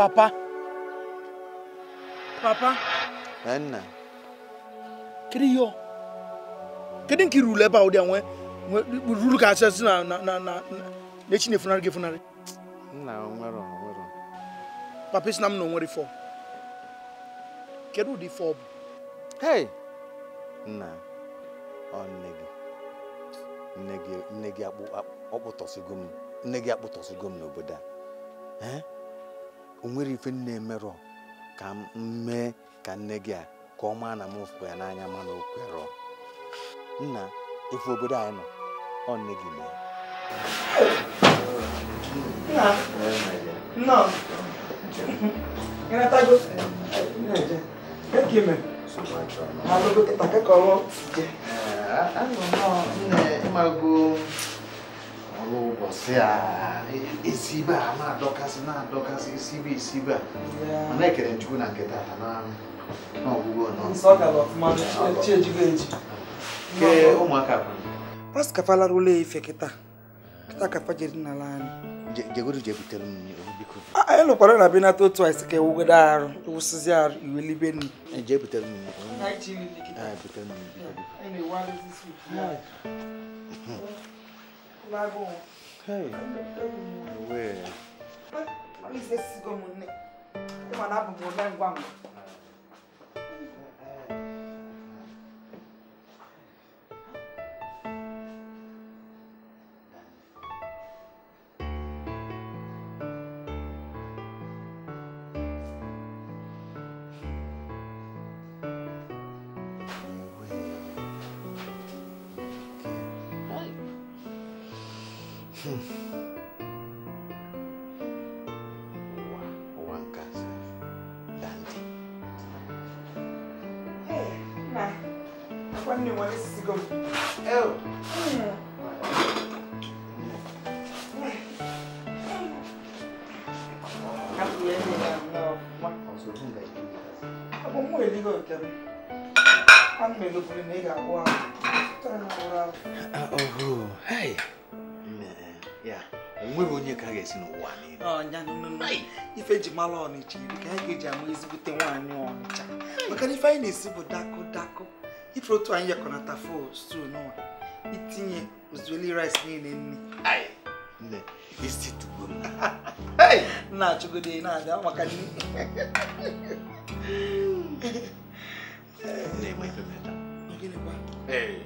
Papa. Papa. Nna. Kedu ihe ọ? Kedu nke ebe a ụdị a ka asị na na na na echi na-efunarị gị funarị? Nna onwero Papa is na m na onwere ife Kedu ụdị fọ bụ? Hey! Nna, ọ nne gị. Nne gị gị nne gị n'obodo a. o nwere ife nne emerụ ka m ka nne gị a ka ọma na m fụ ya n'anya mana o kwerọ nna ife obodo anyị nọ ọ nne gị mee Mago ụbọchị a esibe e, a na-adọkasị na-adọkasị esibe esibe a mana ekere chukwu na nke tata n'ọgwụgwọ pastọ kafalara ụlọ ife kịta kịta kafa jere n'ala anyị jegodu jebutere m biko anyị lụkwara na benata otu anyị si ka ewugodo arụ wụsịzi arụ iwe libe nri jee butere m butere 哎，哟喂！那，妈你才死过么呢？他妈拿布布来管我？ọ bụ nwa eligo nke m ana m elopụrụ na ị ga-agwụ ahụ onweghị onye ka a ga-esi n'ụwa niile ife ji mara ọnịcha iri ka anyị ga-eji ama ezigbute nwaanyị ọnịcha maka na ife anyị na-esi bụ dakụ dakụ ife otu anyị yekọnata fo stew n'ụwa itinye ozueli rice niile nne nne isi tugbo m na-achụgode na-abịa maka nne na-enwe ife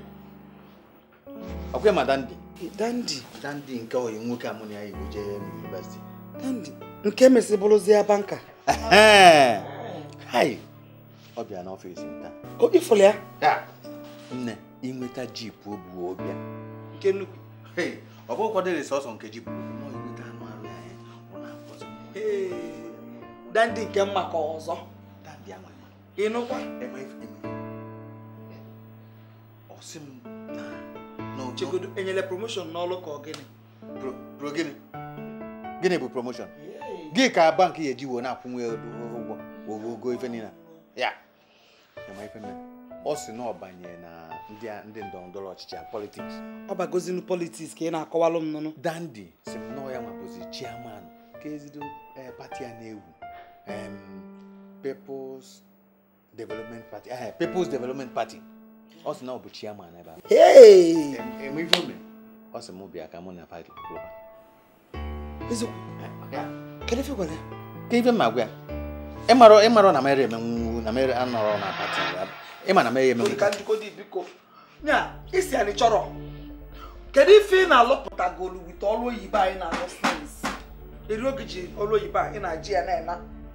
ọkwa ma Dandị. Dandị? Dandị nke oyi nwoke amụrụ ya igbo jee yunivesiti Dandị nke mesịbụrụzie banka hai ọ bịa na m nta. o ifụlụ ya nne inweta jipu o bụ ọbịa nke nnukwu ọ bụ ụkwado sọsọ nke jipu dandi nke mma ka ọzọ ịnụkwa eme eme ọsị m na enyere promotion n'ọlụ ka ọ gịnị gịnị bụ promotion gị ka bank ya eji wee na-akwụnwe ụgwọ ogogo ife niile ya eme ife mme ọ sị na ọbanye na ndị ndọrọndọrọ ọchịchị politiks ọ bagozinu politiks ka ị na-akọwalụ m nụnụ dandi si m nọọ ya mabozi chairman ka ezigbo eh, pati a na-ewu People's Development Party, uh, People's Development Party. Ọ sị na ọ bụ chairman ebe Hey! Enwe ife Ọ sị mụ bịa ka mụ na party Global. Eziokwu. Kedu ife gwara ya? Ka gwa ya. Ịmara ịmara na mere emenwu na mere anọrọ na party ya. Ịma na mere emenwu. Ka ndịkọ dị biko. Nya, isi anyị na-alụpụtagolu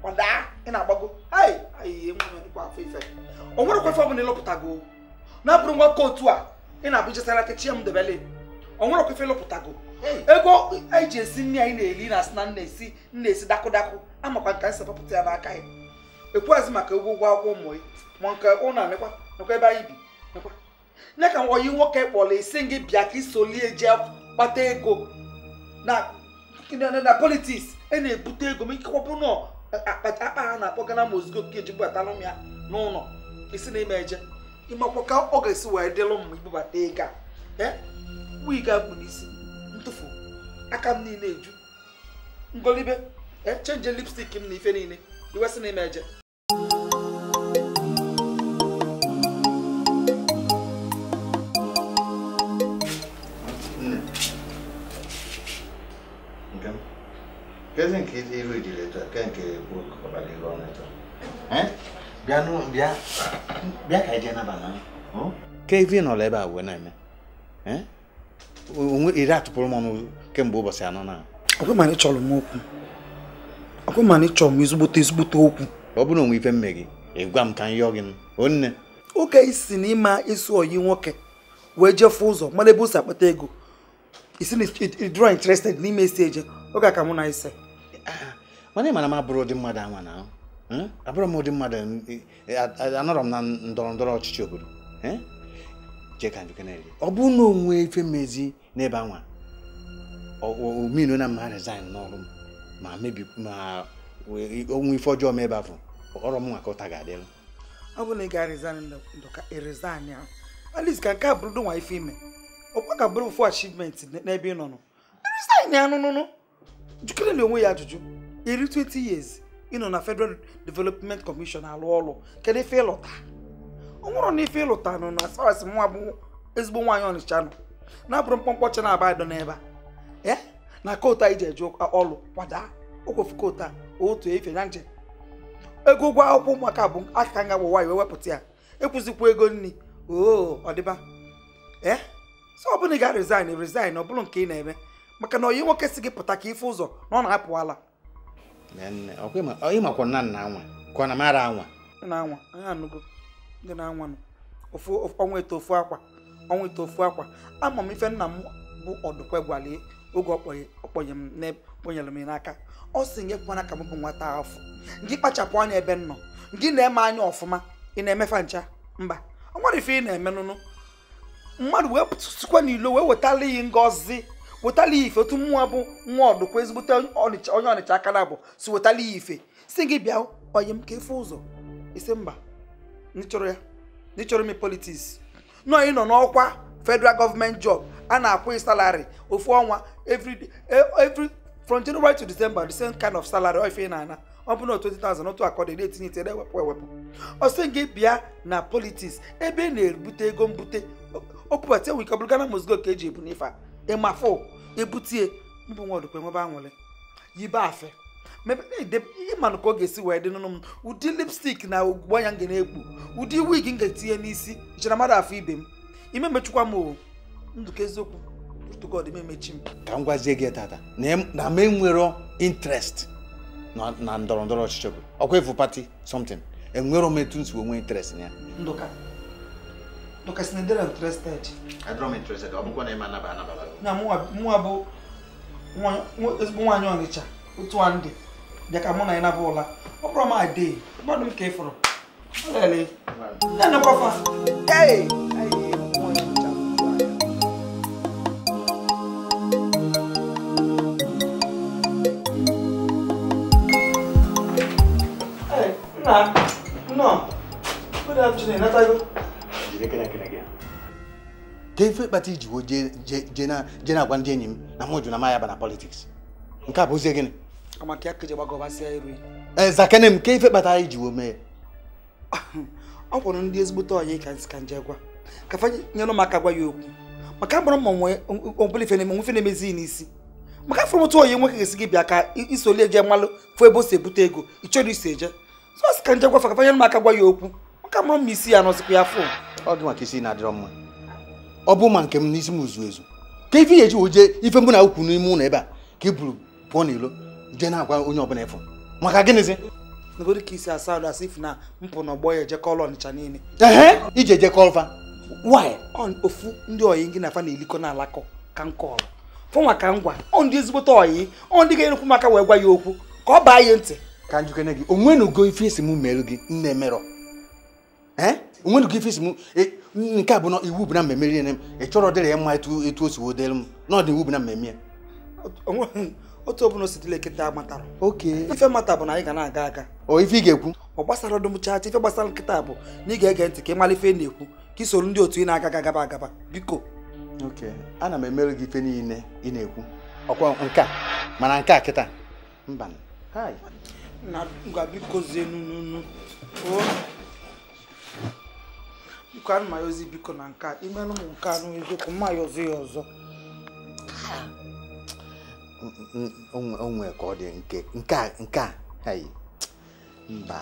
gbadaa ị na-agbago o nwere kwafe ọbụla ịlụpụtago na-abụrụ nwa kootu a ị na-abụ jesarata chi m debele o nwere kwafe go ego e ji esi nri anyị na-eli na asị na nna-esi nna-esi dakụdakụ amakwa nka nsị papụta ya n'aka ya ekwu ekwughazị maka ụgwọ ụgwọ akwụkwọ ụmụ ya ma nke ụna nekwa nekwa ebe anyị bi nekwa nye ka oyi nwoke kpọrọ isi gị bịa ka isolie jee kpata ego na politiks ị e na-ebute ego ma ikekwa bụrụ akpa ha uh, uh, uh, na-akpọ gana mozigo ke jibụbatara m ya n'ụlọ isi na ime eje ịmakwa ka ọ ga-esi wee dịlụ m ibubata ego a wig akpụ n'isi ntụfu aka m niile eju ngolibe chenje lipstik m na ife niile iwe si na ime eje kezi nke iru ijiri etu ke nke bịa ka ije nabana ke ivi nọla ebe a wee na-eme onwe iri atụpụrụ m ọnụ kemgbe ụbọchị anọ na ọkwa ma chọrọ m okwu ọkwa ma chọrọ m ezigbote ezigbote okwu ọ bụrụ onwe ife mme gị ịgwa m ka m yọ gị onne oke isi na ịma isi oyi nwoke wee jefe ụzọ mara ebe o akpata ego isi na ịdịrọ interested n'ime isi eje oge aka mụ na ise mana ịmana m abụrụ ụdị mmadụ anwa na hmm? abụrụ m ụdị mmadụ e, anọrọ m na ndọrọ ndọrọ ọchịchị obodo hmm? jeka njukeneri ọ bụ na onwe ife mmezi n'ebe anwa ominu na mma resign n'ọrụ m ma mebi ma onwe ife ọjọọ m ebe afọ ọrụ m nwa ka ụta ga-adịrụ ọ bụ na ị ga-resign ndụka resign ya at least ka nke a bụrụ nwa ife ime ọkwa ga bụrụ ofu achievement n'ebe ị nọ nọ resign ya nụnụnụ jukere na onwe ya ajụjụ iri 20 years ịnọ na Federal Development Commission alụ ọrụ kedu ife ịlụta ọ nwụrụ na ife ịlụta nọ na sars nwa bụ ezigbo nwaanyị ọnịcha nọ na-abụrụ mkpọmkpọ cha na-aba adọ n'ebe a na kootu anyị ji eje ọrụ kwada okwefu kootu a otu efe na njem. ego ụgwọ akwụkwọ ụmụaka bụ aka nga bụ iwe wewepụta ya ekwụzikwa ego nri oo ọdịba ee sọ ọ ị ga resign resign ọ bụrụ nke ị na-eme maka na oyi nwoke si gị pụta ka ife ụzọ na ọ na-apụwala ịmakwa nna nna anwa ka ọ na anwa na-anwa ndị na-anwa ọnwa ofu akwa ọnwa eto ofu akwa ama m ife nna m bụ ọdụkwe gwale oge ọkpọnye m kponyere m n'aka ọ sị nye kwana ka m bụ nwata afọ gị kpachapụ anya ebe m nọ gị na-eme anya ọfụma ị na-emefa ncha mba ọ nwere ife ị na-eme nụnụ mmadụ wee sikwa n'ilo wee wetala iyi ngozi wetala ife otu mmụọ bụ nwa ọdụkwa ezigbote onye ọnịcha aka na abụ si wetala ya ife si gị bịa onye m ka efe ụzọ isi mba n'ịchọrọ ya n'ịchọrọ ime politiks nọọ ị nọ n'ọkwa federal gọọmenti job a na-akwụ ị salari ofu ọnwa e, every from January to December the same kind of salary ife ị na-ana ọ bụ na 20,000 otu akọdị na-etinye itere ewepụ ewepụ ọsị gị bịa na politiks ebe ị na-ebute ego mbute o enwe ike ọ bụrụ Ghana Mozgo ka eji ebu n'ife a fo ebutie mbụ nwa ọdụkwa enwebe anwụrị yibe afe ịmanụ ka ọ ga-esi wee dị n'ụlọ m ụdị lipstik na ugbu anya nga na-ekpu ụdị wig m ga-etinye n'isi jere mmadụ afọ ibe m ime mechukwa m o ndụka eziokwu tụgod emechi m ka m gwazie gị tata na m enwero interest na ndọrọ ndọrọ ọchịchị bụ ọkwa ịfụ pati somtin enwero m etu nsi onwe interest na ya ndụka ndụka si na ndịra interested adịrọ na ịma anaba na mụnwa bụ ezigbo nwaanyị ọnịcha otu a ndị dịka mụ na ya nabụ ụla ọ bụrụ m ade mmadụ m ka ị fụrụ lele nna nna ọ bụ da m chinenatago gị ife kpata iji wo je na-agwa ndị enyi m na mụ jụ na maya na politiks nke a bụ ozie gịnị ee e, zakene m ke ife kpata anyị wo mee ọ kwụrụ ndị ezigbote ọyị ka nje ka fa nyere aka gwa maka gbara mma nwe ọbụla ife na maka bịa ka isoli eje mmalụ fụ ebe o si ebute ego ị chọrọ isi eje ka nje gwafa ka fa gwa ya okwu maka mkpọrọ mma isi ya ya fụ ọ dị maka isi na-adịrọ mma ọ bụ ma nke m n'isi m uzu ezu ka ife na-eji oje ife mbụ na ukwu n'ime ụlọ ebe a ka i buru pụọ n'ilo jee na-agwa onye ọbụla ịfụ maka gịnịzi nagoro asị ifu na mpụ na ọgbọ ya ejekọ ọlọ niile ehe ije ejekọ ọfa ofu ndị oyi gị na afa na-elikọ na alakọ ka m fụ maka ngwa ọ ndị ezigbote oyi ọ ndị ga-enyekwu maka wee gwa ya okwu ka ọ baa ya ntị ka njikene gị onwe na ugo ife esi m merụ gị nne merọ ee onwe ka ife m e, nke a bụ na iwu bụ na mmemme riere m ị chọrọ dịrị ya mma etu o si wee dịrị m n'ọdị iwu bụ na mmemme ya otu ọbụla ositile nkịta matara ife mata bụ na anyị ga na-aga aga ife ị ga-ekwu ọ gbasara ọdụmchacha ife gbasara nkịta bụ na ị ga-ege ntị ka ị mara ife na-ekwu ka isoro ndị otu ị na-aga agaba agaba biko ana m emere gị ife niile ị na-ekwu ọkwa nke mana nke a kịta mba biko zie nunu biko ana m ayọzi biko na nke a imelụ m nke anụ eziokwu mma ayọzi ya ọzọ onwe ka ọ dị nke a nke a mba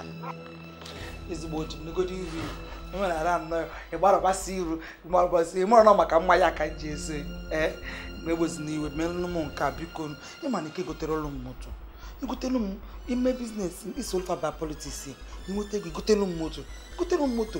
ezigbo ji negodi e iru enwere ara anọ ịgbarabasị iru ịmarabasị ịmara na maka mma ya ka e, m ji ese ee na-egbozi n'iwe melụ m nke a biko ịma na ike gotere ụlọ m moto igotelu m ime biznes isolfa ba politiks inweta ego igotelu m moto igotelu m moto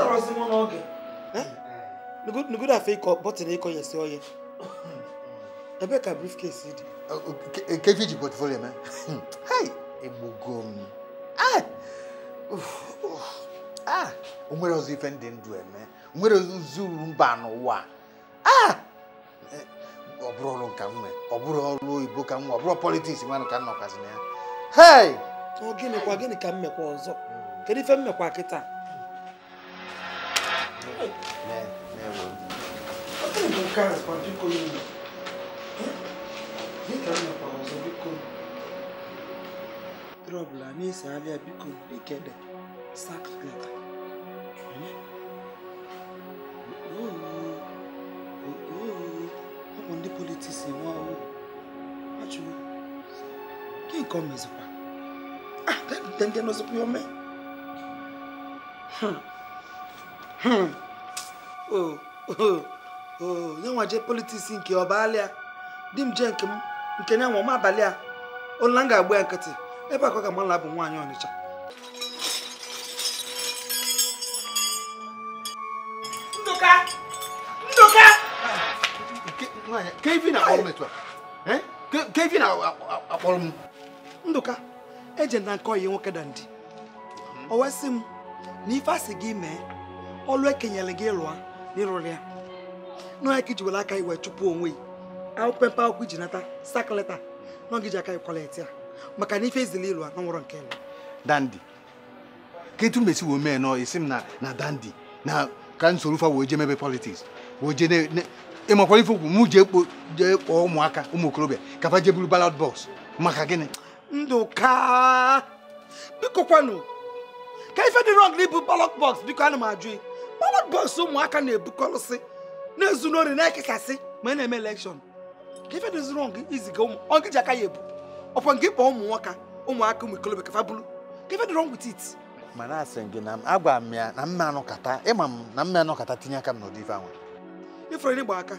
tarọsị mụ n'oge afọ ịkọ bọtịn ịkọ ya si oye ebe ka briefcase dị nkeji ji portfolio mee egbugo m o nwere ọzọ ife ndị ndụ eme nwere zuru mba n'ụwa ah! eh, ọ bụrụ ọrụ nka nwe ọ bụrụ ọrụ oyibo ka nwe ọ bụrụ politiks nwanụ ka nnọkwazi na ya gịnịkwa gịnị ka mmekwa ọzọ hmm. kedu ife mmekwa mekwa kịta Ne, ne won. Até então cara, quando fico indo. Ni kan na pawo so biko. Trouble ani se avia biko de kede. Sack letter. Ne. Oh. Oh. Ọmọ ndị politisi wọn o. Achụrụ. Kí nǹkan mezikwa? Ah, dẹ́gbẹ̀dẹ́gbẹ̀ n'ọzọkwa ya ome. Hmm. Hmm. Oh, oh, oh. nwa jee politiks nke ọbalịa di m jee nke m nke nya nwa m abalị a ụla m ga-agba ya nkịtị ebe akọ ga m ala bụ nwaanyị ọnịcha ndụka eje na nke ọyi nwoke dandi o wesị m na ife asị gị mee ọlụ ekenyere gị lụa n'ịrụrụ ya nọọ ka iji were aka iwe chụpụ onwe yi akwụkwọ mpe akwụkwọ iji nata sakaleta nọ gị ji aka ikwaleti ya maka na ife ezili ịlụ na nke ịlụ dandi ketu mesi wee mee nọ isi m na na dandi na ka nsoro fa wee jee mebe politiks wee jee ịmakwara ife okwu m jee kpọọ ụmụaka ụmụ okorobịa ka fa jee buru balad bọs maka gịnị ndụka biko kwanụ ka ife dị rọng n'ibu balad bọs biko ana m ajụ mama bọọsụ ụmụaka na-ebukọrọsị na-ezunori na-ekekasị ma a na-eme elekshọn ka ife dị zụrụ iziga ụmụ ọgị ji aka ya ebu ọkwa ngị kpọọ ụmụ nwoke ụmụaka ụmụ ikolobịa ka fa bụrụ ka ife dị wrong with mana asị gị na agwa m ya na mma anọkata ịma m na mma anọkata tinye aka m n'ụdị ife anwa ifere n'ịgba aka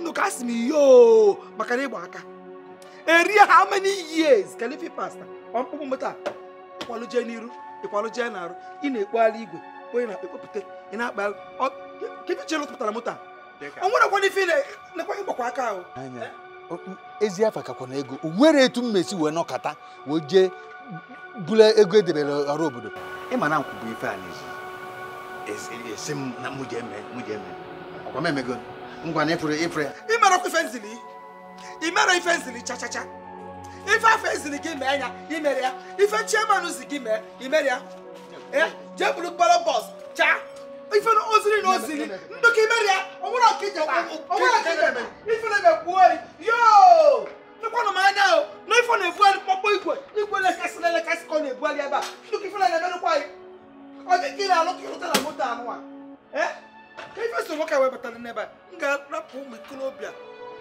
ndụ asị m iyo maka na ịgba aka eri how many years ka pasta ọmkpụkpụ mụta ịkwalụ n'iru ịkwalụ jee n'arụ ị na-ekpogharị igwe onye na-akpa ekpopụta ị na-akpa kedu chere tụpụtara moto a o nwere kwado ife nekwa ịgbakwa aka ahụ ezi afa kakwa na ego nwere etu m mesi wee nọkata wee jee bụla ego edebere ọrụ obodo ịma e, na nkwụ bụ ife a n'ezi esi m na mụ ji eme mụ ji eme ọkwa m emego ngwa na ịfụrụ ịfụrụ ya ịmara ọkwa ife nzili imere ife nzili chachacha ife afọ ezili gị mee ya imere ya ife chiemanụ zi gị mee imere ya jee bụrụ kpọrọ bọs chaa ife na oziri na oziri ndụ ka imeri ya ọnwụrụ ọka ije ọnwụrụ ọka ije ife na na-ekwu oyi yoo nụkwanụ m anya o na ife na-ebugharị mkpọkpọ igwe igwe lekasị na elekasị ka ọ na-ebugharị ebe a ndụ ka ife na na-emerụkwa anyị ọ dị ka ị na-alụ ka ịlụta na moto anụwa ka ife so nwoke wee batara n'ebe a m ga-arapụ ụmụ ikolobịa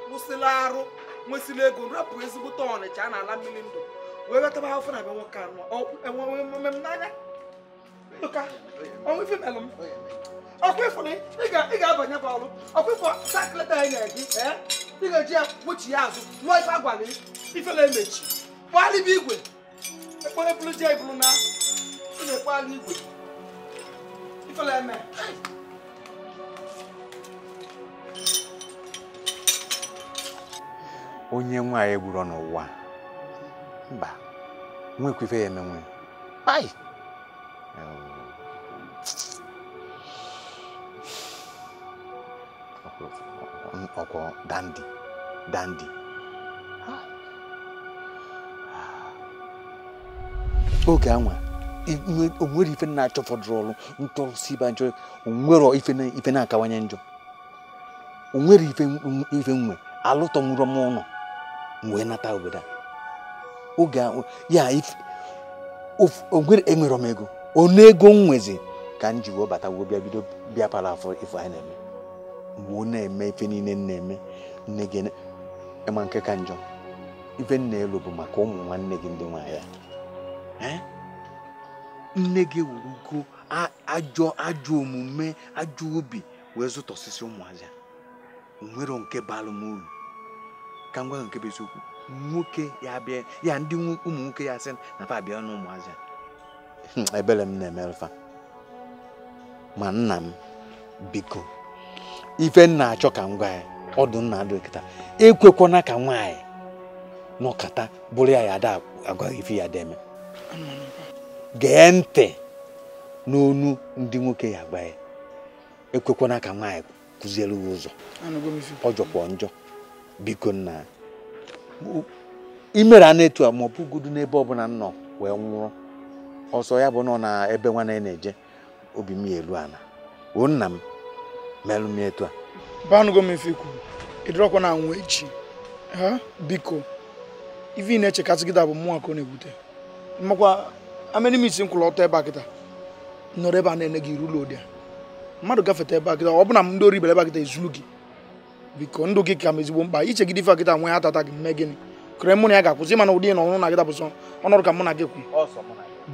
kwụsịla arụ nwesịrị ego rapụ ezigbote ọnịcha a na-ala mmiri ndụ wee wetaba ha ofe na be nwoke anụwa enwe mmemme n'anya Luka, ọnwụ ife melụ m. Ọkwa ịfụ na ị ga-abanyekwa ọrụ. Ọkwa ịfụ sakleta ya na-eji, e? ị ga-eji ya kpuchi ya azụ, lụọ ife agwara ifele emechi. Kpalị bụ igwe. Ekpere bụrụ ji eburu na ị na-ekpalị igwe. Ifele eme. onye nwaanyị gburu n'ụwa mba nwekwa ife ya emenwe ai akwụkwọ dandi dandi ah. ah. oge anwa onwere ife na-achọ fọdụrụ ọrụ si ibe njọ onwere ife na-akawanye njọ onwere ife nwe alụtọ nwụrụ m ụlọ wee nata obodo a oge ya onwere enwere m ego onu ego m nwezi ka m ji wee bata wee bịa bido bịa para afọ ife anyị na-eme mgbe na-eme ife niile na-eme nne gị ịma nke ka njọ ife nna elu bụ maka ụmụ nwanne gị ndị nwaanyị nne gị wurugo ajọ ajọ omume ajọ obi wee zụta osisi ụmụazị nwere nke balụ m ka ngwa nke bụ nwoke ya bịa ya ndị ụmụ nwoke ya sị na fa abịa na ụmụazị ebere m na-emerefa ma nna m biko ife nna achọ ka m gwa ya ọdụ nna adịkịta ekwekwana ka nwaanyị nọkata bụrụ ya ya ada agwaghị ife ya deme gee ntị n'onu ndị nwoke ya gwa ya ekwekwana ka nwaanyị kụziere ya ụzọ ọ jọkwa njọ biko nna imere a na-etu a ma ọ bụgodu n'ebe ọbụla nọ wee nwụrụ ọsọ ya bụ nọ na ebe nwa na-eje obi m ya elu ala o nna m melụ m etu a banugo m ife ikwu ịdịrọkwa na anwụ echi ha biko ife ị na-echekasị kịta bụ mmụọ bute na-ebute makwa amịrị nkwụrụ ọtọ ebe a kịta nọrọ ebe a na-ene gị a ụlọ mmadụ gafeta ebe a kịta bụ na m ndị ori ebe a gị biko ndụ gị ka mba, ezigbo mkpa ife akịta nwe atata gị gịnị kere mụ na ya ga-akwụsị mana ụdị na ọnụ na bụ ka na gị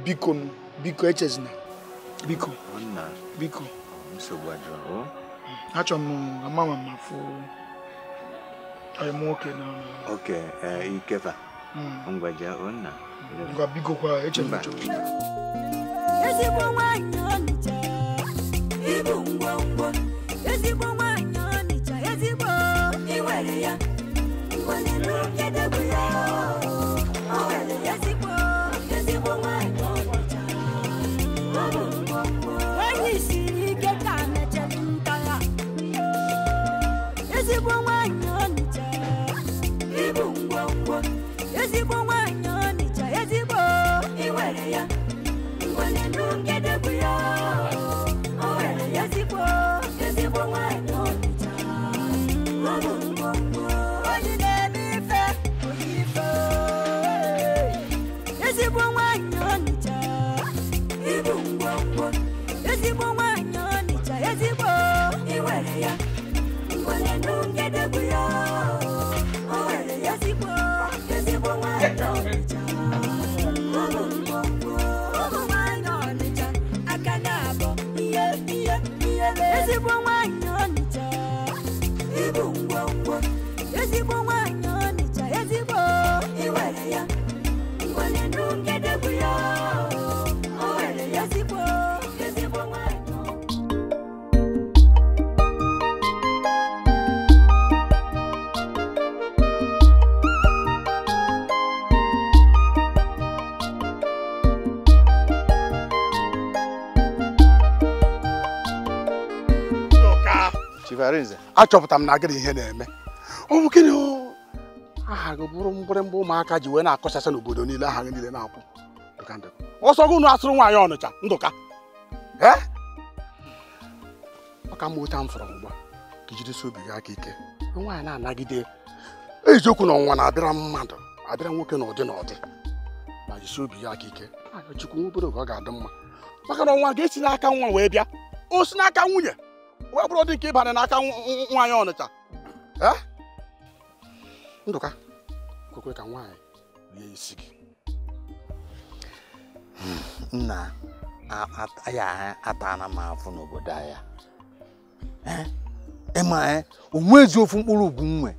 biko biko echezina biko biko achọrọ okay. ama keep afụ nwoke na oke ikefa ngwaja onna ngwa bigokwa eche m ezigbo nwanyị ọnịcha ibu ngwa ngwa achọpụtara m na agịrị ihe na-eme ọ bụ gịnị aha gị bụrụ mgbịrịgba ụmụaka ji wee na-akọchasị n'obodo niile aha gị niile na-akwụ ọsọ gị unu asụrụ nwaanyị ọnụcha ndụka ọka mma oche m fọrọ mgba ka jidesi obi gị aka ike nwaanyị na-anagide eziokwu na ọnwa na-abịara mmadụ abịara nwoke na ụdị na ụdị ma jisi obi ya aka ike chukwu obere oge ọ ga-adị mma maka na ọnwa ga-esi n'aka nwa wee bịa o si n'aka nwunye wee bụrụ dị nke ịbanye n'aka nwaanyị ọnịcha ndụka kwekwe ka nwaanyị rie isi gị nna ya atala m afụ n'obodo anya ịma e, onwezi ofu mkpụrụ ugwu nwe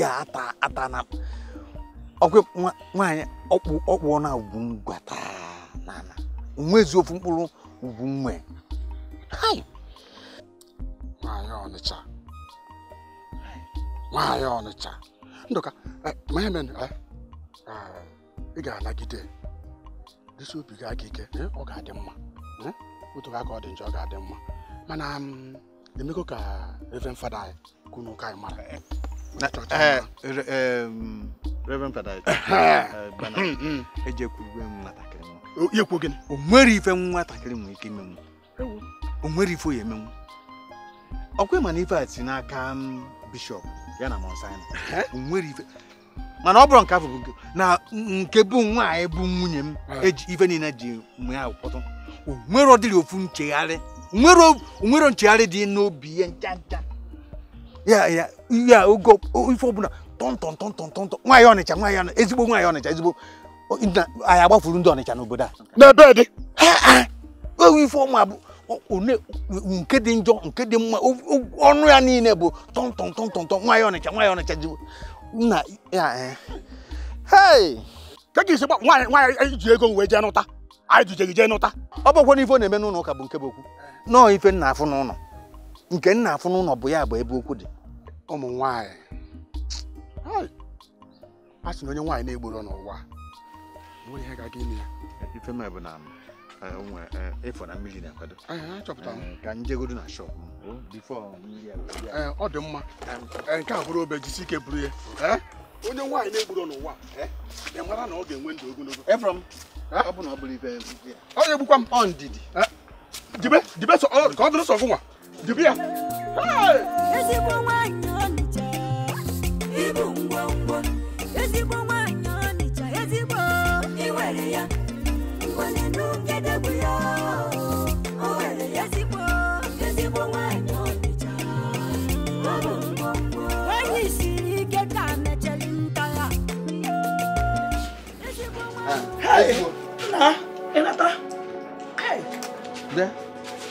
ya ata atana nwaanyị ọkpụ na ugwu gwata nana onwezi ofu mkpụrụ ugwu nwe Ọnịcha nwaanyị Ọnịcha ndụka ma eme ị ga-anagide dịsi obi gị aka ike ọ ga-adị mma otu aka ọ dị njọ ọ ga-adị mma mana emego mm, ka Reverend Fada anyị kunu ụka anyị mara eh, eh, eh, mm, Reverend Fada anyị hmm, hmm. ejekwurugwe m nwatakịrị m o nwere ife nwatakịrị nwere ike imenwu o nwere ife o ya emenwu ọkwa ma na ife a si n'aka mm, bishọp ya na monsin nwere ife mana ọ bụrụ nke afọ na nke bụ nwaanyị bụ nwunye m eji ife niile ji mgbe ha kpọtụ onwere ọdịrị ofu nchegharị onwere nchegharị dị n'obi ya ncha ncha ya ya ya oge ife ọbụla tọntọntọntọntọ nwaanyị ọnịcha nwaanyị ọnịcha ezigbo nwaanyị ọnịcha ezigbo anyị agbafuru ndị ọnịcha n'obodo a n'ebe dị ife ọma bụ nke dị njọ nke dị mma ọnụ ya niile bụ tọntọntọntọntọ nwa ya ọnịcha nwa ya ọnịcha ji nna ya e. ka ga-esi gba nwaanyị ji ego wee jee nụta anyị jije gị jee nụta ọ bụkwa na ife na-eme n'ụlọ ụka bụ nke bụ okwu nọọ ife nna afụ n'ụlọ nke nna afụ n'ụlọ bụ ya bụ ebe okwu dị ụmụ nwaanyị a sị na onye nwaanyị na-egboro n'ụwa nwere ihe ga-aga ime ya Eh, eh, nwe ịfọ eh, na mmiri na-akwado ka njegodo na shop oh, ọ dị mma nke a bụrụ obe jisi ike buru ya onye nwaanyị na-egburu n'ụwa mara na ọ ga-enwe ndụ ogologo onye gbukwa m ọ ndidi jibe ka ọ dịrị sọ gụnwa jibe ya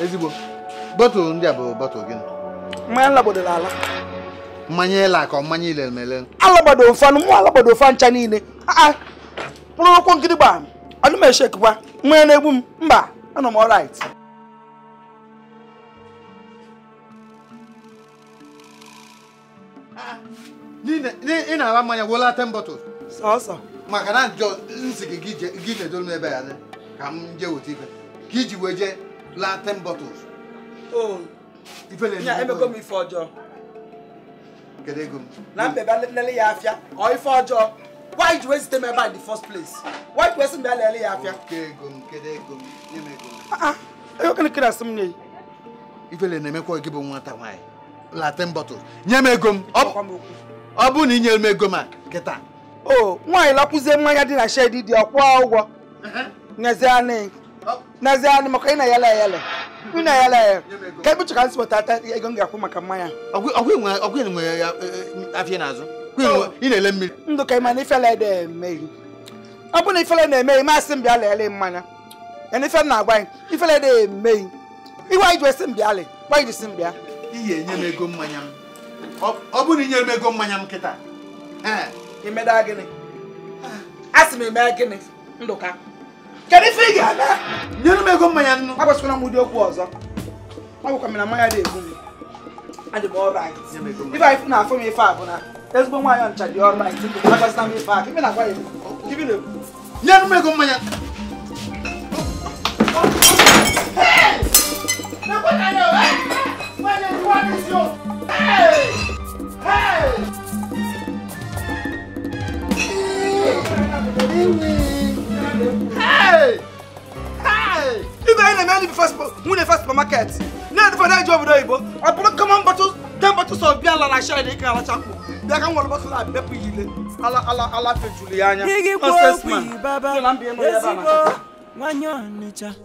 ezigbo bọtụlụ ndị a bụ bọtụlụ gịnị mmanya labodoro ala mmanya ele ka mmanya ile mele alabado ofe anụ mụ alabado ofe ncha niile ah, ah. mkpụrụ akwụkwọ nkịtị gbaa anụ m echekwa nwa na-egbu m mba anọ m ọrait ị na-agba mmanya wụla ten bottles sọsọ maka na njọ nsị gị gị jedolu m ebe ya ka m ife ka iji wee jee laa ten m ife ọjọọ ego m na mbebe ya afịa ọ ife ọjọọ why ji wee zite ebe a the first place why ji wee sị m bịa lele ya afịa ego gịnị kere asị m ah, ah. nye ifele na-emekwa gị bụ nwata nwaanyị latin bottle nye m ego m ọ bụrụ na ị nyere m a kịta o nwaanyị lakwụzie mmanya dị na ya dị ọkwụọ ụgwọ nezianị maka ị na-ayala ayala na maka mmanya ọgwụ nwere e, afịa Oh. ị na-ele mmiri ndụ ka ị ma na ifele na-emeghị eh, ọ bụrụ na ifele na-emeghị masị m bịa lele mmanya yana ife na-agwa anyị ifele na-emeghị eh, iwe anyị ji esi m bịa le gwa anyị jisi m bịa iyi enye m ego mmanya m ọ bụrụ na inyere m ego mmanya m kịta imeda eh, gịnị asị m eme gịnị ndụka kedu ife ị ga-abịa nyere m ego mmanya nnu agbasịkwala m ụdị okwu ọzọ ọ bụkwa m mmanya dị egbu m adị m ọrait ibe anyị fụ na afọ m ife a bụ na ezigbo nwaanyị ọncha dị ọrait agazina m ife aka ibe na-agwa ya nye m ego mmanya Hey! If I am the first win the first market. Now for that job doibo. I put common bottles, ten bottles of beer and I share the can chapo. They can one bottle of beer yile. Ala ala ala fe Juliana. Nonsense man. Baba. Nwanyo nicha.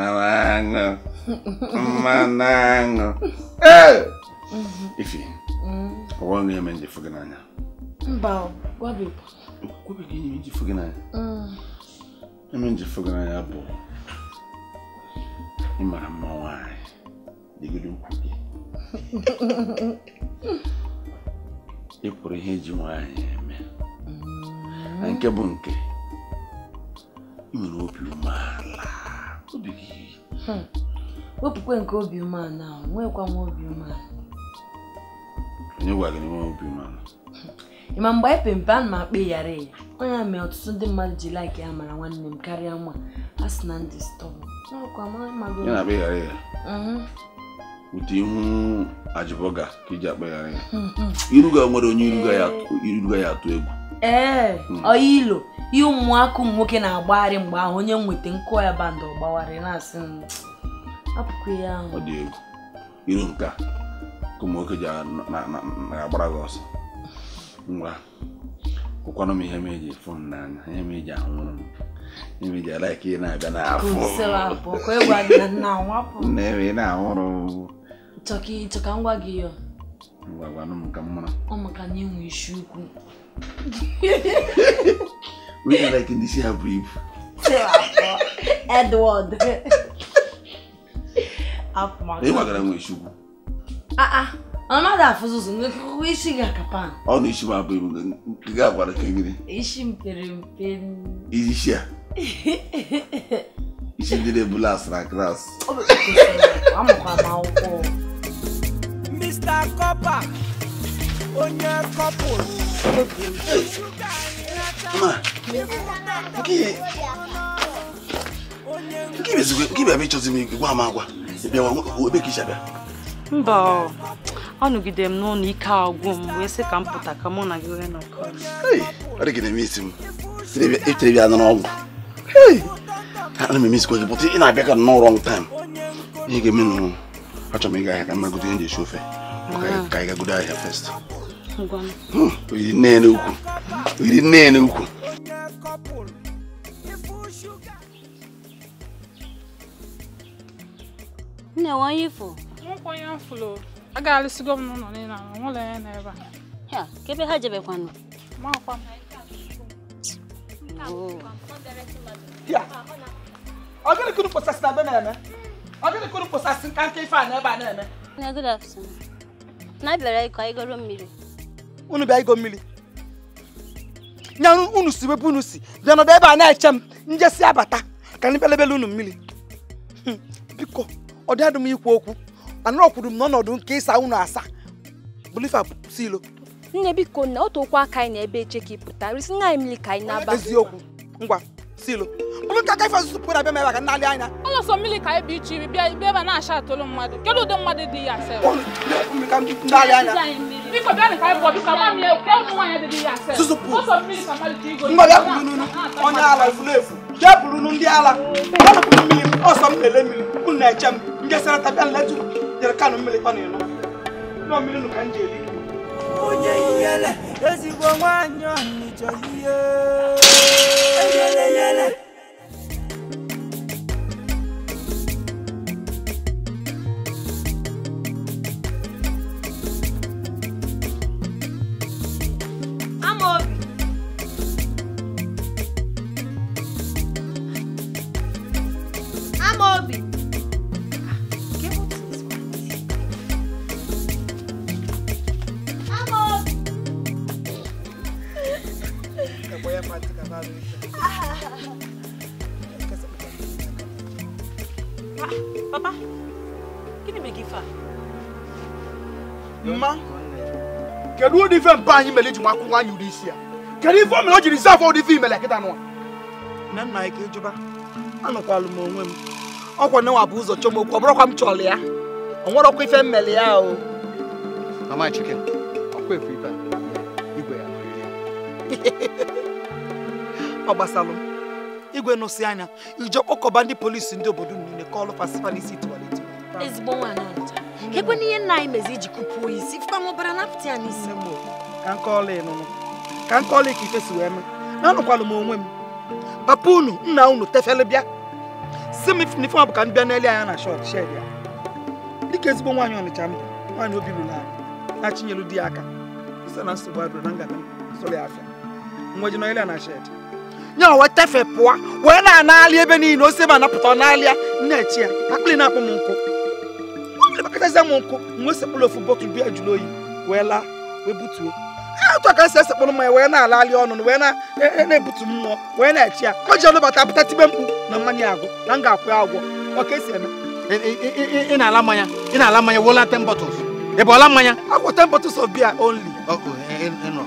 malango, manango. Uhum. Enfim, wala na yaman di fagananya. Mbaw, gwabi po. é gini yaman di fagananya. Yaman di fagananya po. Imara mawai, digidu kuki. Ikwuru ihe ji nwaanyị me. Nke bụ eu não nwere obi umeala. obi hmm. wepụkwa nke obi umeala ahụ nwekwa nwa obi umeala onye gwa gị na nwe obi umeala hmm. ị ma mgbe anyị pere mpe a na m akpa ịghara ya onye a mere ọtụtụ ndị mmadụ ji laik ya mara nwanne m karịa nwa a sị na ndị stọbụ ụtụ mm-hmm. ihu ajibọga ka iji e akpa ịghara ya hmm, iruga nwere onye iruga ya atụ egwu ee eh, hmm. ilo ihe ụmụaka ụmụ nwoke na-agbagharị mgbe ahụ onye nweta nkụ ya bandụ ọgbagharị na-asị hmm, apụkwa ya ahụ ọ dị egwu iru nke a ka ụmụ nwoke ji agbara gị ọsọ ngwa kwụkwanụ m ihe m eji fụ m n'anya ihe m eji anwụrụ m ihe m eji alaika ị na-abịa n'afọ nne m ị na-ahụrụ chọka ngwa gị ya ngwa gwanụ m ka m mara ọ maka na ịnwe isi ukwu We ah, ah. till oh, I can see her breathe. Edward. Afmark. Ẹ wà gara mọ ìṣubú. Ah ah. Mama da fuzuzu nekuku ishi ga kapan. Ọ na The ma bụ ibu ga agbara ka gịnị. Ishi mpere mpe. Ishi a. Ishi ndị na-ebula asara gras. Amụkwa m akwụkwọ. Mr. Copper. onye kọpụl bịaba ịchọzi m gwa m agwa ebe ka isi abịa mba anọgide m n'ụlọ ike agwụ m wee sị ka m pụta ka mụ na gị wee nọkọ ọ na-eme isi m etere bịa nara ọgwụ ana m emesikwa gị ị na-abịa ka nnọọ rọng ihe ga-eme achọrọ m ịga ahịa ka mmagodo ihe ji esi ofe ka anyị gagodo ahịa fest Iri nne n'ukwu. Oh. nne n'ukwu. Nne ifo. Nwokwanye afụlụ. A alụsigo m n'ụlọ niile ahụ, nwụlọ ya n'ebe a. ha jebekwanụ. Ọ gịnị kụrụ kpọsasị na be na-eme? Ọ gịnị kụrụ kpọsasị nke ife a na-eme? Na bịara ịkọ unu bịa igo mmiri nya unu si wepụ unu si bịa nọdụ ebe a na-eche m njesi abata ka anyị belebele unu mmiri hmm, biko ọ dị adị m ikwu okwu anọkwuru m n'ọnọdụ nke ịsa unu asa bulifa si ilo nne biko na otu okwu aka anyị n'ebe eche ka ị pụta resi nna anyị mmiri ka anyị na-aba eziokwu ngwa silo. ilo bụrụ nka kafe ọzụzụ pụrụ abịa mebe ka nalị anya ọlọsọ mmiri ka ebe iche ibi bịa ebe na-acha atụrụ mmadụ kedu ụdị mmadụ dị ya asịrị Biko bia ni kai bo biko ma mi Susu pu. Oso mi ni samali ti go. Mba ya Onye ala ifulefu. Je buru nu ndi ala. Ba na ku mi ni oso mi ele mi. Ku na eche m. Nje sara ta bia Jere kanu mi le pa ni nu. No mi nu ka nje Onye yele ezigbo nwanyo ni joye. Yele yele. be anyị mere eji makwụ nwaanyị ụdị isi ya kedu ife o mere o jiri afọ ụdị ife imere kịta nwa na nna anyị ka ịjụba anụkwalụ m onwe m ọkwa na nwa bụ ụzọ chọm okwu ọ bụrụkwa m chọrọ ya ọ nwerọkwa ife mmele ya o mama e chike ọkwa efu ife igwe ya ọ gbasalụ igwe nụsị anya ije kpọkọba ndị polisi ndị obodo m niile ka ọlụ fasifa n'isi tiwaleti ezigbo nwaanyị ekwe n'ihe nna anyị mezi iji kụpụo isi fụkwa nwụbara napụta ya n'isi mgboo ka nkọọla ịnụnụ ka nkọọla ka si wee mee na anụkwalụ m onwe m papa unu nna unu tefele bịa si m n'ife ọ bụ ka m bịa n'elu anya na shọt shed ya dịka ezigbo nwaanyị ọnịcha mbụ nwaanyị obi anyị na achịnyelu di ya aka ise na nsogbu adụrụ na ngana ya afịa ya na nye tefe pụọ wee na ebe niile ose ma anapụta ọ n'alịa nnechi ya na-akpụ m nkụ akpịrị m nkụ ofu biya jụrụ oyi wee atụ aka si esekpụrụ mmanya wee na-alali ọnụ wee e, e, na-ebutu mmụọ wee na-echi ya o ji ọnụbata pụta tibe mkpu na mmanya agụ na m ga-akwụ ya agwọ ọka esi eme ị na-ala mmanya ị na-ala mmanya wola te ị bụ ọla mmanya agwọ ten bottles of beer only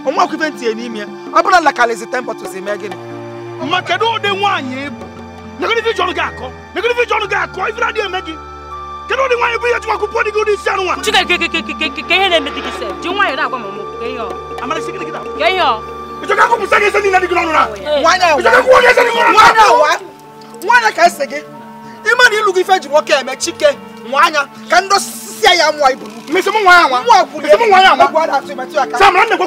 ọnwa e, ọkụfe ntinye n'ime ya ọ bụrụ na lakalizi te gịnị ma kedu ụdị nwaanyị gị akọ negodivi gị akọ eme gị kedu ụdị nwaanyị bụ ihe ji akwụkwọ gị isi anụ nwa ka ihe na-eme gị se ji nwaanyị na-agwa m ka ihe ọ ka ihe ọ gị gị n'ọnụ na ịchọka kwụọ gị ka ese gị ịma na ịlụ gị ife ji nwoke eme chike nwa anya ka ndị osisi ya mụọ ibu mmesi m nwa ya nwa mmesi nwa ya nwa samara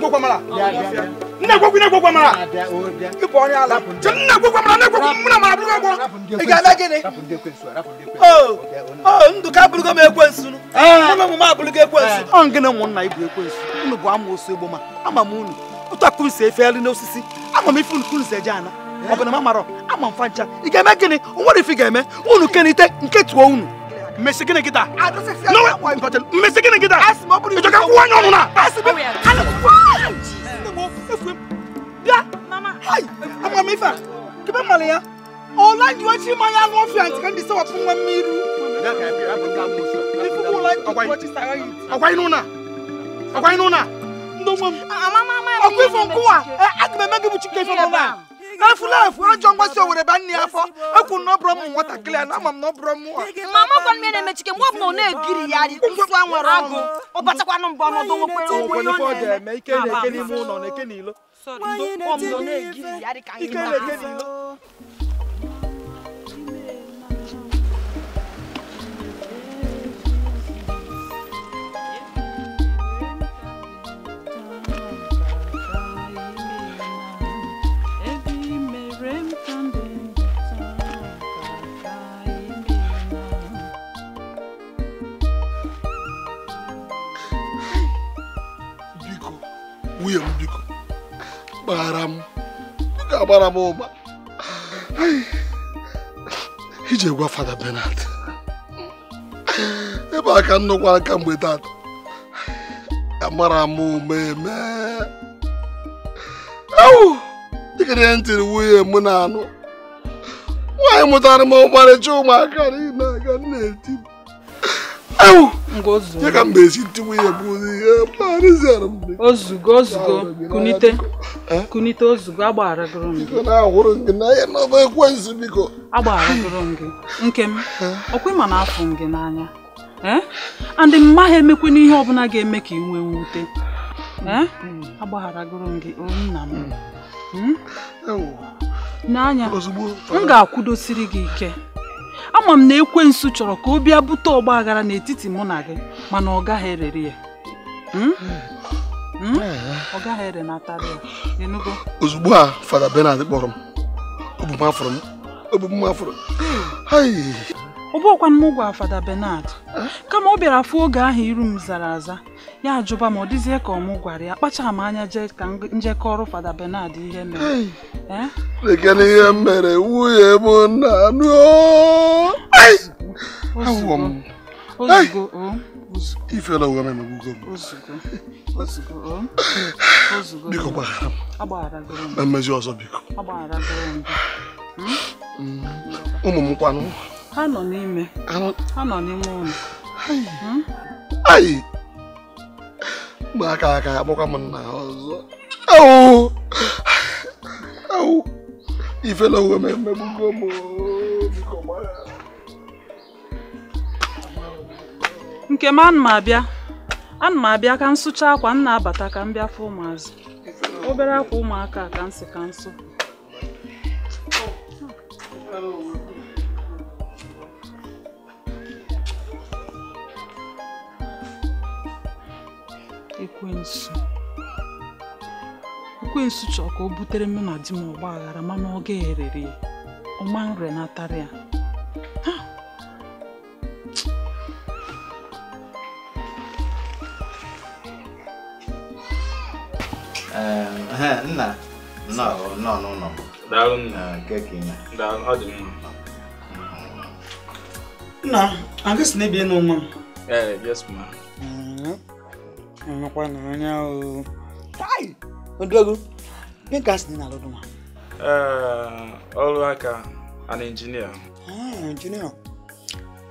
kwa nna gbogbo nna gbogbo mara ibɔ ni ala jɛ nna gbogbo mara nna gbogbo muna mara buluko gbɔ iga bɛ gini o o ndu ka buluko ma ekwe nsu nu ah. ndu mu ekwe nsu. ɔn eh. gina mu nna ibu ekwe nsu unu bụ ama osu egbo ma ama m unu ụtọ kun se efe elu n'osisi ama m ife unu kun se je ana eh. ọ bụ na ma mara ama m fa ị ga-eme gịnị nwere ife ga-eme unu kenite nke tụọ unu mmesi gịnị gị taa mmesi gịnị gị taa ịjọ ka kwụwa nye ọnụ na oh, Hai, apa mifa? Kiba malaya? Ola ndio chi maya no fi anti kan disa wapun wa miru. Da ka bi abu ka mu so. Ni fu ko like to watch sara yi. Akwai nuna. Akwai nuna. Ndo mom. Ama mama. Akwai fon kuwa. Eh agbe magi bu chike fon na. Na fu na fu ajo ngwa so wore ban ni afọ. Eku no bro mu wata clear na mam no bro mu. Mama kon me na me chike mo mo na egiri ya di. Nso anwere ago. Obatakwa no mbo no do wo pe o. Wo ne fo de me ike na ike ni mu no sorry. Ndo, come, don't give me. I can't give you. kpaghara m ọ ga-agbara m ụgba ije gwa fada Benard ebe aka nnukwu aka ka mgbe tata amara m ụma eme awụ dịkịrị ntịrị nwunye m na-anụ nwaanyị mụtara m ọmarịcha ụmụaka niile aga na-eti ya ka m na-esi ntiwe ya bụ ozugbo ozugbo kunite eh? kunite ozugo agbaragoro m gị agbaragoro m gị nke m ọkwa ịma na afụ m gị n'anya eh? andị mma ha emekwana ihe ọbụla ga-eme ka ị nwee mwute eh? agbaghara goro m gị mm. hmm? nna m n'anya m ga-akwụdosiri gị ike ama m na ekwensu chọrọ ka ọ bịa bute ọgba n'etiti mụ na gị mana ọ gaghị erere ya hmm? Hmm? ọ gaghị ere natara ya enugo ozugbo a fada Bernard kpọrọ m obumafọrọ m obumafọrọ ọ bụghịkwa m ụgwọ fada Bernard kama ọ bịara afụ oge ahụ iru m zara aza ya ajụba ma ọ dịzie ka ọmụ gwara ya kpachara m anya jee ka njekọrụ fada Bernard ihe mere lekene eh? ihe mere nwunye m na anụ mmezi ọzọ biko hmm. ụmụ m kwanụ ha nọ n'ime ụlọ hmm? ụmụaka aka akpọkwa m nna ha ọzọ ifela uwe m emegbugo m nke m ana m abịa ana m abịa ka m sụchaa akwa m na-abata ka m bịa fụ ụmụazụ obere akwa ụmụaka ka m si ka nsọ. ekwensu ekwensu chọọ ka o butere mụ na di m ọgba aghara mana ọ ga-erere ya ọma nrenatara ya ehm, nna nọ n'ụlọ nna a gasị ehm, na ebe nọ nwa m Nọkwana anya o. Kai! Odogo, ihe ka asị na alụdụ ma? Ọrụ aka, an engineer. Ah, engineer.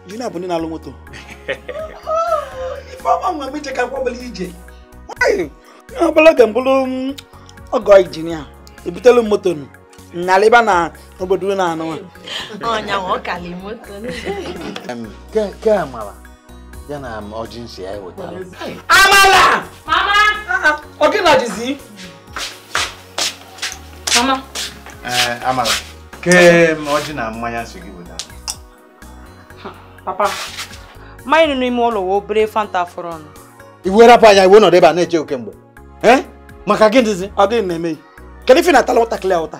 Engineer bụ ndị na-alụ moto. Ifeọma nwa mgbe ka kwabala ije. Nwanyị, ihe ọbụla ga mbụrụ mm, ọgọ injinia. Ebutelu moto nụ. Nnalịba na obodo na anụwa. Ọnya nwa ọkala moto. Ke a mara. ya na ọjị nsị ya wetara amala mama ọ gị na ọjịzi mama ee eh, amala kee m na mmanya nsị gị wetara papa mmanya nọ n'ime ụlọ wee obere fanta fọrọ ọnụ iwe rapụ anya iwe nọdụ ebe a na-eche oke mgbe eh? maka gị dịzi ọ dịghị na-eme kedu ife na-atala ụtakịrị ya ụta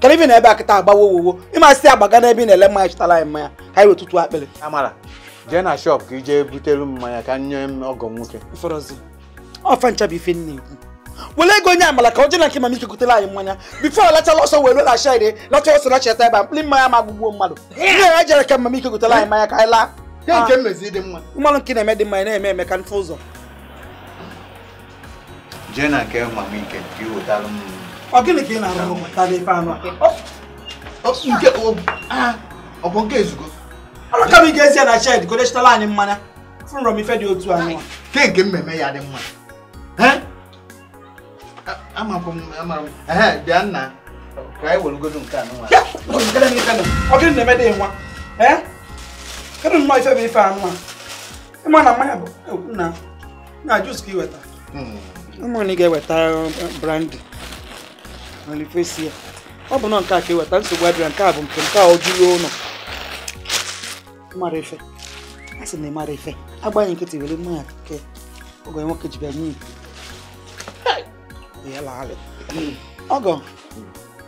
kedu ife na ebe akịta agbawa owowo ịmasị agbaga n'ebe ị na-ele mmanya chịtara anyị mmanya ka anyị wetụtụ akpịrị amara jee na shọp ka ije butere mmanya ka nye m ọgọ nwoke ọfa ncha bụ ife nne ekwu were ego onye amala ka ọ jee nke mama ike anyị mmanya bifo lachala ọsọ were lacha ire lacha ọsọ lachata ebe a mkpụrụ mmanya ma agbụgbuo mmadụ ihe jere ka mama ike anyị mmanya ka anyị laa ah. mmanụ nke na-eme dị mma na-eme eme ka mfe ụzọ jee na nke mama ike ka ị ọ gịnị ka ị na-arụ ụmụ tara ife anụ ah, ọ bụ nke ezugo ka m ị ga-esi na chid godechitala anyị mmanya fụrọ m ife dị otu anyị nke nke mmemme ya dị mma bịa nna anyị welugodo nke a ọ gịnị na-eme dị nwa kedụ nnọọ ife bụ ife anụ a ịma na mmanya bụ e, na na jus ka weta. Hmm. ụmụnne ga-eweta uh, brandi olifesi ya ọ bụ nọ nke a ka weta nsogbu adịra nke a bụ nke nke a ọ jụrụ ụlọ mara ife a sị na ị mara ife agbaghị nkịtị were mmanya ke oge nwoke ji bịa nye iku ọgọ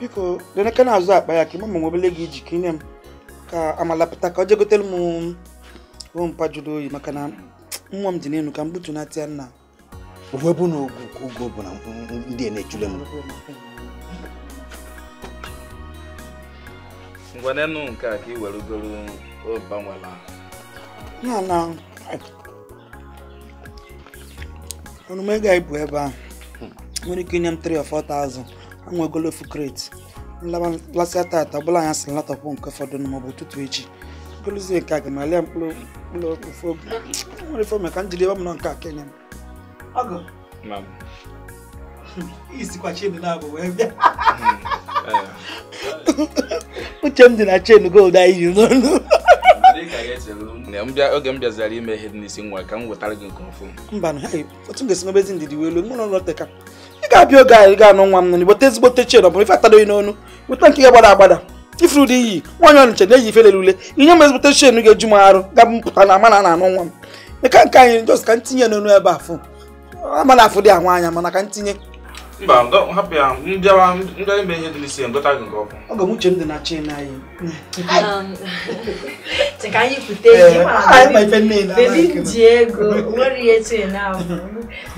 biko deneke na-azụ akpa ya ka ịma ma nwebele gị iji ka inye m ka amala pụta ka ọ jee gotere m ompa jụrụ oyi maka na nwa m dị n'elu ka m gbutu na tịa nna uwe bụ na ogo bụ na ndị na-echule m nwanne nụ nke a ka ị were ugoro banwela ya na onume ga-ebu ebe a nwere ike inye m 3 or 4000 anwegolo ofu kreti nlasịa tata ọbụla anya sị latọpụ nke fọdụ nụ maọbụ ụtụtụ echi golozie nke a ga malịa mkpụrụ mkpụrụ ofu oge nwere ife ka m jiri ebe m nọ nke a kenye m ọgụ isikwachi ebe na-abụ wee bịa uche m dị na chen gold anyị yi n'ọnụ oge m bịazara ime ihe dị n'isi nwa ka m wetara gị nke ọfụ mba otu m ga-esi mebezi ndidi wee elu mụ na ụlọ teka ị ga-abịa oge anyị ga anụ nwa m nọ igbote ezigbote chen ọ bụrụ ife atadoghị n'onu weta nke ga-agbada agbada ifuru dị iyi nwaanyị ọnịcha na-eyi ife lere ule ihe m ezigbote chen ga-eju m arụ ga mpụta na ama na anụ nwa m meka nke anyị jos ka m tinye n'ọnụ ebe afụ ama na afụ dị ahụ anya mana ka m mba hapụ ya mbịawa ndị ime ihe dị n'isi ngọta gị nke ọkụ ọ ga-amụche m dị na chi na anyị um, ka anyị pụta eji bebi m ji ego nwere ihe chi na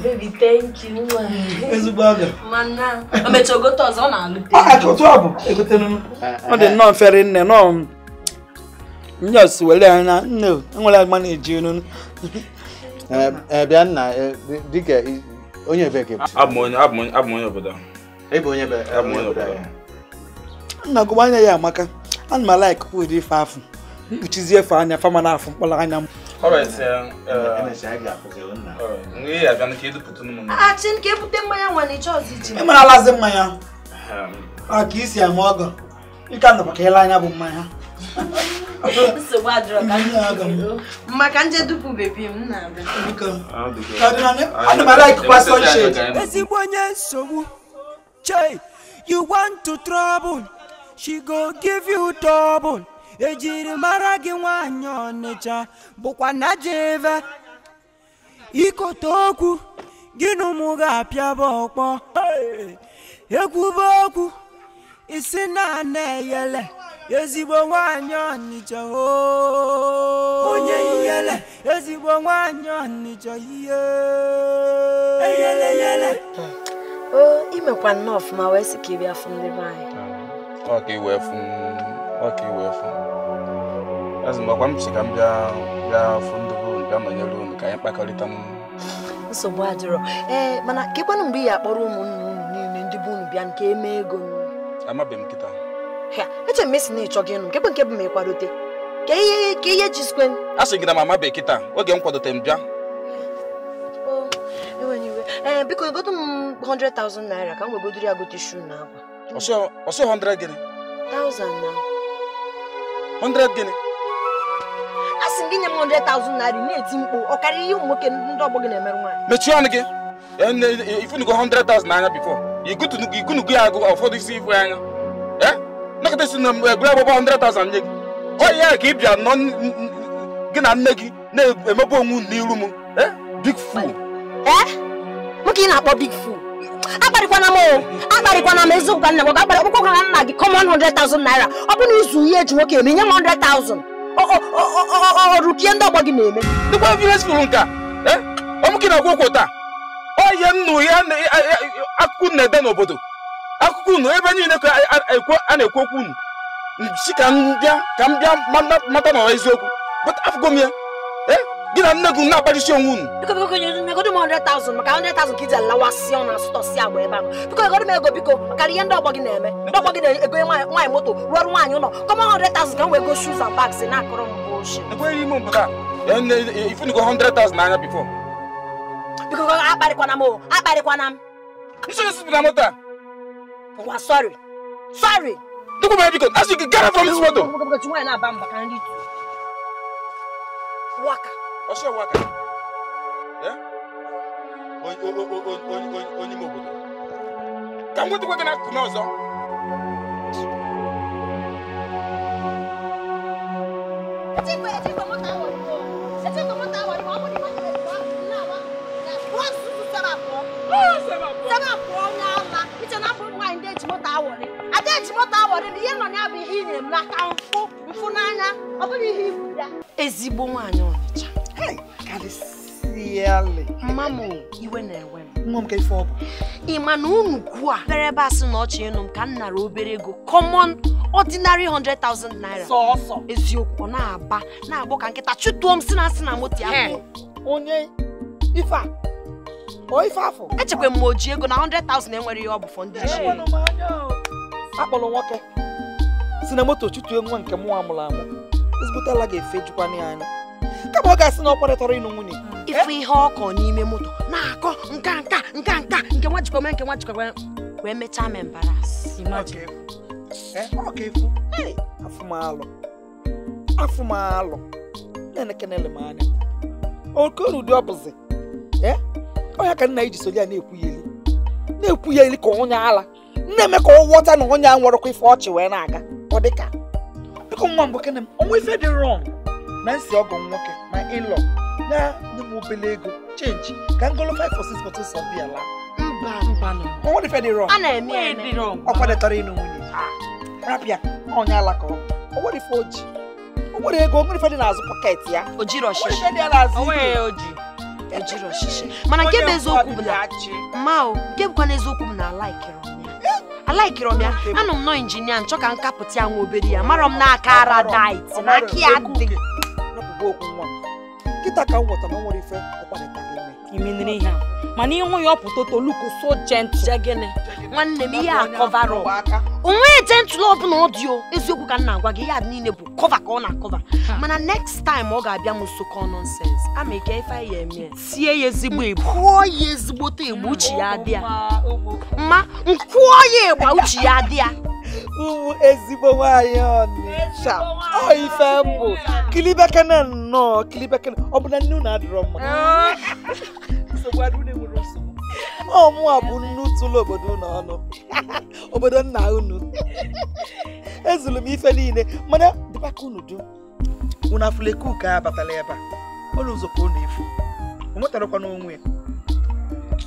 bebi thank you ezigbo aga mana o mechara gote ọzọ ọ na-alụte ọtụ ọ bụ egotenụ ọ dị nnọọ mfere nne nọọ ndị ọsụ were anya nne enwere agba na-eji enu eh, eh, bịa nna eh, dịka onye ebe ka abụ onye obodo ebe onye obodo nna gụba anya ya amaka ana m ala ikuku ụdị ife afụ mkpuchizi efe anya fama na afụ mkpọrọ anya m uh, ịmara alazi ah, e mmanya a ah, ka isi ama ọgọ ịka nọkwa ka ịla anya bụ mmanya maka m na ah, ah, ezigbo onye nsogbu chai you want to trouble she go give you trouble ejiri mara gị nwanyị ọnịcha bụkwa na jeve ikote okwu gị na ụmụ ga-apịa bụ ọkpọ ekwube okwu isi na ana eyele ezigbo nwanyị ọnịcha onye ihele ezigbo nwanyị ọnịcha ihe eyele yele o imekwa nnọọ ọfụma wee sị ka ị bịa fụ ndị be anyị ọka iwe fụ ọka iwe fụ azụmakwa m si ka m bịa bịa fụ ndị bụ bịa nọnyere unu ka anyị kpakọrịta m nsogbu adịrọ ee mana ka ịkwanụ mgbe ị ya akpọrọ ụmụnne unu niile ndị bụ unu bịa nke eme ego amabeghị m kịta eche m esi na ịchọ gị ịnụ nke bụ nke bụ ma ị ka ihe ka ihe a sị gị na mama bekee taa oge m kwadote m bịa eh, biko godo m 100,000 naira ka m wegodoro ya gote shu na akwa ọsị 100 gịnị 100 gịnị a sị gị nye m 100,000 naira na-eti ọ karịrị ihe ụmụ nwoke ndị ọgbọ gị na-emerụ nwaanyị mechie ọnụ gị ifunugo 100,000 n'anya bifo igunugo ya agụ ụfọdụ isi ifu anya nekịta si na egwure agbụgbọ 100,000 nye gị onye ya ka ị bịa nọ gị na nne gị na emebe onwe n'iru m eh? big fool eh? nwoke ị na-akpọ big fool akparịkwana m akparịkwana m eziokwu ka nna m ga ọkpụkpọ gwara nna gị 100,000 naira ọ bụrụ izu ihe eji nwoke eme nye m 100,000 ọrụpie ndị ọgbọ gị na-eme dịkwa vileji fụrụ nka eh? ọmụ gị na-agwụ taa ọ nnu ya akụkụ na-ede n'obodo akụkọ unu ebe niile ka a na-ekwu okwu unu si ka m bịa ka m bịa mata na eziokwu afụgo m ya eh, gị na nne na-agbajisi onwe unu biko biko 100,000 agba ego biko maka ihe ndị ọgbọ gị na-eme moto rụọ ọrụ ụlọ m m eh, biko akparịkwana m akparịkwana nsogbu moto a But we're sorry. Sorry! Look at my icon. As you can get out from this water. Waka. What's your waka? Yeah? Onye obodo. Ka m gwetakwa gị n'akụkụ n'ọzọ. Chikwe, chikwe, moto ahụ ọrụ. Chikwe, moto ahụ ọrụ. Ọ bụ na ịma na ịma na ịma na ịma. Wọ́n sụsụ sara abụọ. Wọ́n sara abụọ. na-echibọta awara ihe nọ ya bụ ihe ị na-eme aka mfụ mfụ n'anya ọ bụghị ihe ibu ya ezigbo nwaanyị ọnịcha mma m iwe na-ewe m ị ma na unu ugwu a bere ebe asị na ọchị ịnụ m ka m nara obere ego common ordinary 100,000 naira sọọsọ eziokwu ọ na-aba na-agbọ ka nkịta chụtụọ m si na asị na moto ya onye ife a ife afọ echekwa m ma o ji ego na 100,000 enwere ihe ọ bụ fọ ndị ji akpọrọ nwoke si na moto chụtue nwa nke mụnwa mụrụ amụ ezigbote ala ga-efejukwana ya anya kama ọ ga-asị na ọ kparịtara ịnụ nwunye ife eh? ihe ọkọ n'ime moto na-akọ nka nka nka nka nke nwa jikwa nke nwa jikwa wee mechaa me mbaras eh, afụmalụ afụmalụ na-enekenele m anya okonu ụdị ọbụzi ọnya eh? ka nna ya iji soli ya na-ekwu ya eli na-ekwu ya eli ka onye ala nne eme ka ọ ghọta na onye a nwụrụkwa ife ọchị wee na-aga ọ dị ka biko nwa mbụ kene m ọnwa ife dị rọng na nsi ọgụ nwoke ma ịlọ na nye m obele ego chenji ka ngolo 5 or 6 bottles of beer laa ọnwa ife dị rọng ọ kwadetara ịnụ nwunye rapịa onye alaka ọnwa ife oji onwere ego onwere ife dị n'azụ pọket ya ojiro ọchịchị mana nke bụ eziokwu bụ na ma nke bụkwa n'eziokwu bụ na alaikere alaikirọm ya anọ m nọ injinia nchọ ka m ya nwa obere ya mara m n'aka aradit na aka ya dị nkịta ka m nwetara nwere ife ọkwanịta imenere ihe mana ịhụ ya ọpụta toluko so jentụl nwanne m ihe a kọvarọ onweghị jentụl ọbụla ọ dị eziokwu ka m na-agwa gị ya niile bụ kọva ka ọ na-akọva mana next time ọ ga-abịa m sokọ nonsens ama ike ife ya eme sie ya ezigbo igbo kụọ ya ezigbote igbo uchi ya ya mma nkwụọ ya ịgba uchi ya ya. ụmụ ezigbo nwanyị ọnịcha ọ ife mbụ kilibekene nnọọ kilibekene ọ bụ na nne unu adịrọ mma ọmụa bụ nnu tụlụ obodo unu ọnụ obodo nna unu ezulu m ife niile mana dịbaka unu dum unu afụlekuka abatala ebe a ụlọ ụzọ ka unu efu o nwetarakwa n'onwe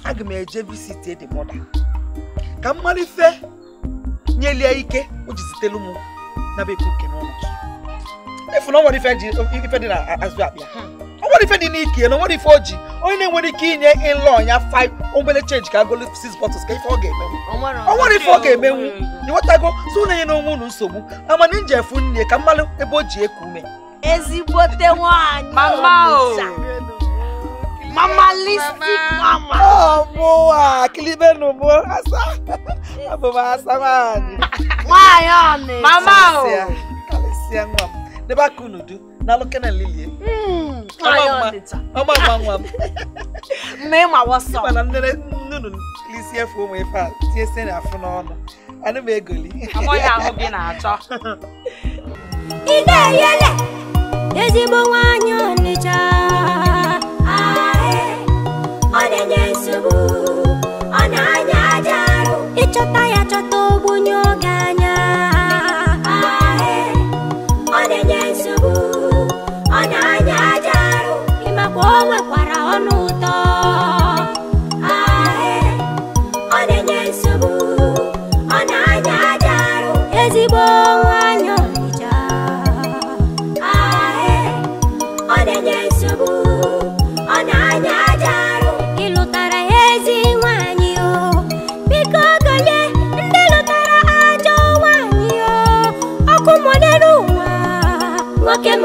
aga m eje visit dị mọda ka m ife nyeli ya ike o jizitelu m n'aba ekwu nke n'ọnụ efu na onwere ife dị na azụ akpa ya onwere ife dị n'ike na onwere ife o ji onye na-enwere ike inye ịlọ ya 5 obele change ka agolo 6 bottles ka ife ọ ga-emenwu onwere ife ọ ga-emenwu ịghọtago so na-enye n'onwe unu nsogbu amana nje efu nne ka mmalụ ebe o ji eku ume ezigbote nwaanyị Mamalistic mama. Oh, boa. Que lindo no boa. Essa. A boba essa, mano. Maiane. Mama. Alicia, mama. ba kunudu. Na loke na lilie. Hmm. Maiane. Mama, mama. Name I was so. Mama, ah, nene hmm, nunu. Alicia for me fa. Tie sen afọ n'ọnụ. Anu me egoli. Amo ya ahụ gị na-achọ. Ị ga-eyele ezigbo nwaanyị Ọnịcha. ọ na-anya aja Ị ịchọta ya chọta ogbunye ọ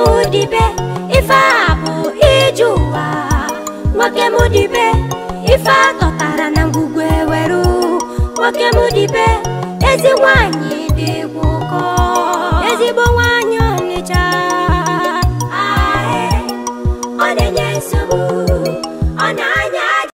nwoke ife a bụ ije ụwa nwoke mudibe ife a atọtara na ngwugwu eweru nwoke mudibe ezi nwanyị